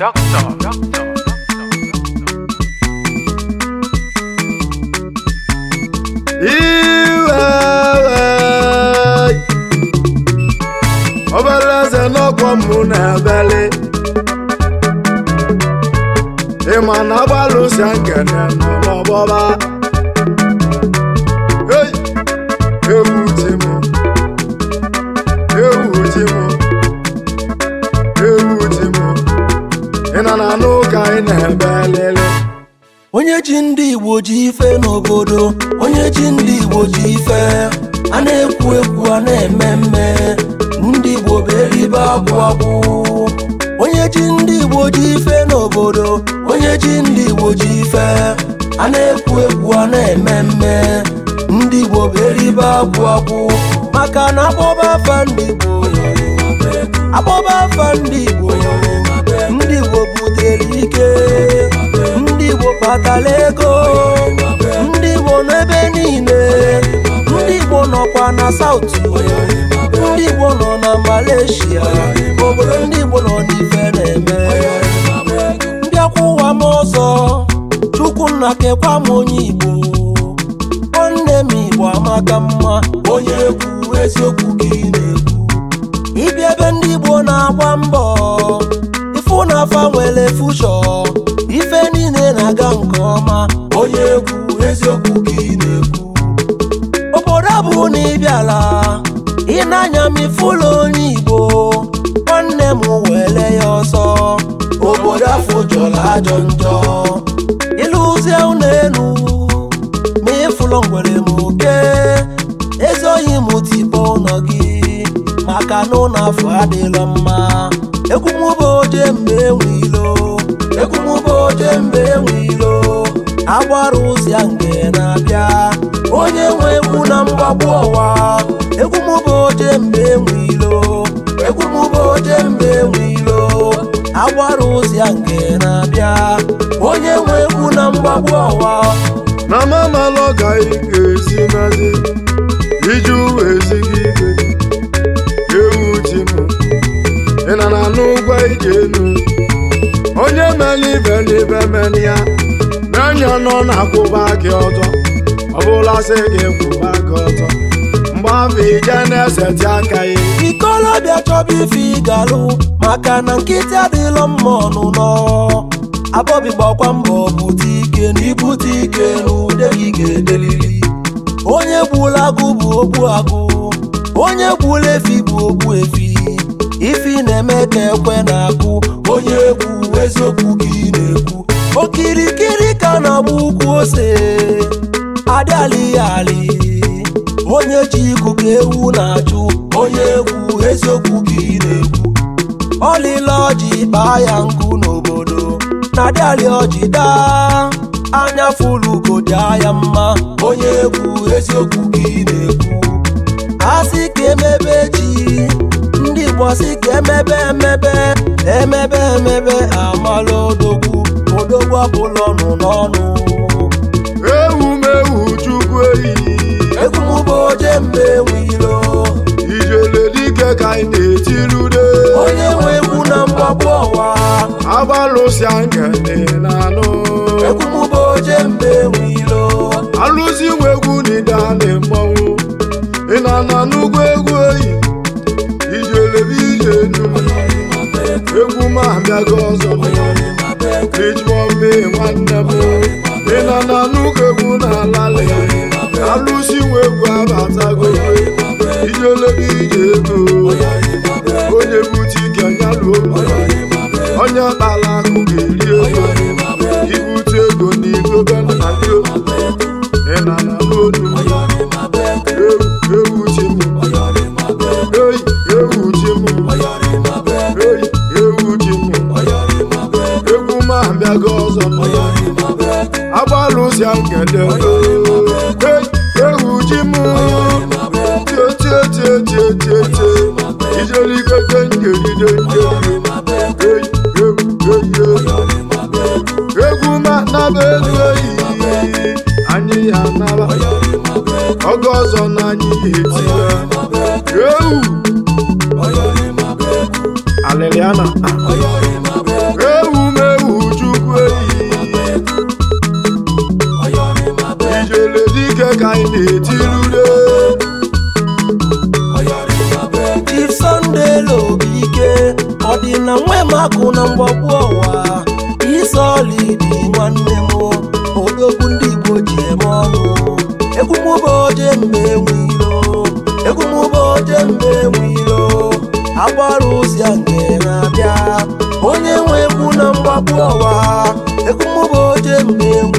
Doctor. Doctor. ọbara eze n'ọkwọ m na-abịali ịma na agbalụsi nkene n'ọgbọba ewu ji m ewu ji m ị na na anụ ụka anyị na-ebe onye ji ndị Igbo ji ife n'obodo onye ji ndị Igbo ji ife a na-ekwu ekwu a na-eme mme ndị Igbo bụ eribe akwụ akwụ onye ji ndị Igbo ji ife n'obodo onye ji ndị Igbo ji ife a na-ekwu ekwu a na-eme mme ndị Igbo bụ eribe akwụ akwụ maka na akpọba afa ndị Igbo akpọba afa ndị Igbo ike ndị Igbo kpatara ego ndị Igbo n'ebe niile ndị Igbo nọkwa na South ndị Igbo nọ na Malaysia obodo ndị Igbo nọ n'ife na-eme ụwa m ọzọ chukwu nna kekwa m onye Igbo nwanne m Igbo amaka mma onye egwu eziokwu gị na-ekwu ịbịa ebe ndị Igbo na-agba mbọ ifu na fushọ ife niile na-aga nke ọma onye egwu eziokwu gị na-ekwu obodo abụ na ịbịala ịnanya m ụlọ onye igbo nwanne m were ya ọsọ obodo afọ jọrọ ajọ njọ ịlụzie ụlọ elu ma ịfụlọ ngwere m oke ezoghị m tibo ụlọ gị maka na ụlọ afọ adịla mma egwu bụ oje m gbara ụzọ ya nke na-abịa onye nwe egwu na mgbagbu ọwa egwu mụba oje mgbe enwe ilo oje mgbe enwe ilo agbara ụzọ ya nke na-abịa onye nwe egwu na mgbagbu ọwa na mamalụ ọgaghị ga nazi iji uwe ezighị ike ewu ji m ị na na n'ụgwọ ije enu onye mere ibe n'ibe mere ya onye nọ na-akwụba gị ọtọ ọ bụla sị gị kwụba gị ọtọ mgbe afọ ije na-eseti aka ya ikolobịa chọba ife ịgalụ maka na nkịtị adịlọ mma ọnụ nọ abọbi gbakwa mbọ bute ike na ibute ike na gị ga-edelili onye gbula agụ bụ ogbu agụ onye gbula efi bụ ogbu efi ifi na-eme ka ekwe na-akụ onye egwu eziokwu gị na-ekwu okirikiri ka na-agba ukwu ose Adị alị onye ji ikuku ewu na-achụ onye egwu eziokwu ka ị na-ekwu ọlịla ọji kpaa ya nkụ n'obodo na alị ọjị daa anya fụlugodi aya mma onye egwu eziokwu ka ị na-ekwu asị ka emebe ji ndị Igbo sị ka emebe emebe emebe emebe amala odogwu odogwu ọbụla ọnụ n'ọnụ ewumewu chukwu eyi egwumụba oje mgbe ewilo ijele dike ka anyị na-etirude onye nwe egwu na mgbapụ ọwa agbalụsịa nkelanụ egwumụba oje mgbe ewilo alụzi nwe egwu na ide a na ị na-ana n'ugwu egwu eyi ijele ije egwu ma abịago ọzọ Each one. nwanne m ị nọ na n'ụlọ egwu na-alalị alụsi nwa egwu abata alụsịa nkele ewu ji m tietietietietie ijelikete nkelide nkeli egwu manaba elu eyi anyị ya naba oge ọzọ na anyị ga-etinye ewu ka anyị na-etiri ure Chief Sunday ike ọ dị na nwemakụ na mgbagbu ọwa isolidi nwanne m odogwu ndị Igbo ji eme ọnụ egwu m ụbọchị mgbe enwe ilo egwu m ụbọchị mgbe enwe agbara ozi nke na-abịa onye nwe egwu na mgbagbu ọwa egwu m ụbọchị mgbe enwe